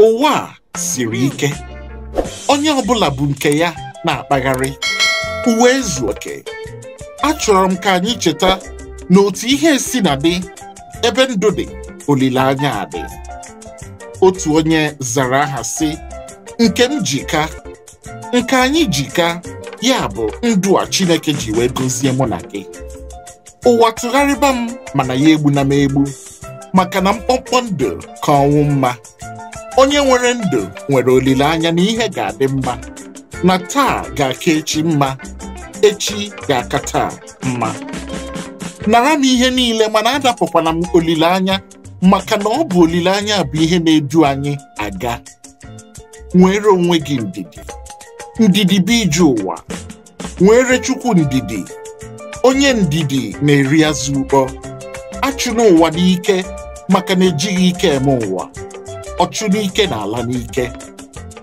ụwa a siri ike onye ọbụla bụ nke ya na-akpagharị uwe ezu oke achọrọ m ka anyị cheta na otu ihe si na dị ebe ndụ dị olileanya dị. otu onye zara aha si nke m jika nke anyị jika ya bụ ndụ a Chineke ji wee gọzie mụ na gị ụwa tụgharịba m mana ya egbu na m egbu maka na mkpọmkpọ ndụ ka ọnwụ mma onye nwere ndụ nwere olileanya na ihe ga-adị mma na taa ga-aka echi mma echi ga-aka taa mma nara m ihe niile mana adapụkwana m olileanya maka na ọ bụ olileanya bụ ihe na-edu anyị aga nwere onwe gị ndidi ndidi bụ ije ụwa nwere chukwu ndidi onye ndidi na-eri azụ ụkpọ achụna ụwa n'ike maka na ejighị ike eme ụwa ọchụ n'ike na ala n'ike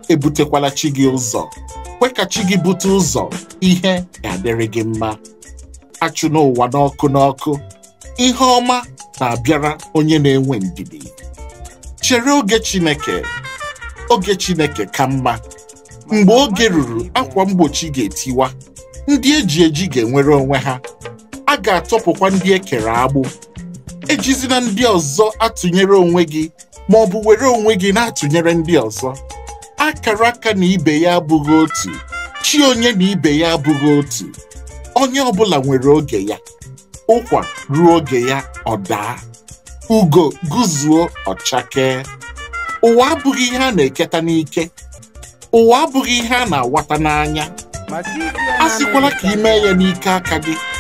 ebutekwala chi gị ụzọ kwe ka chi gị bute ụzọ ihe ga-adịrị gị mma achụ n'ụwa n'ọkụ n'ọkụ ihe ọma na-abịara onye na-enwe ndidi chere oge Chineke oge Chineke ka mma mgbe oge ruru akwa mgbochi ga-etiwa ndị eji eji ga-enwere onwe ha a ga-atọpụkwa ndị ekere agbụ ejizina ndị ọzọ atụnyere onwe gị ma ọ bụ were onwe gị na-atụnyere ndị ọzọ akara aka na ibe ya abụghị otu chi onye na ibe ya abụghị otu onye ọ bụla nwere oge ya ụkwa ruo oge ya ọ daa ugo guzuo ọchakee ụwa abụghị ihe a na-eketa n'ike ụwa abụghị ihe a na-awata n'anya a sịkwala ka ị mee ya n'ike aka gị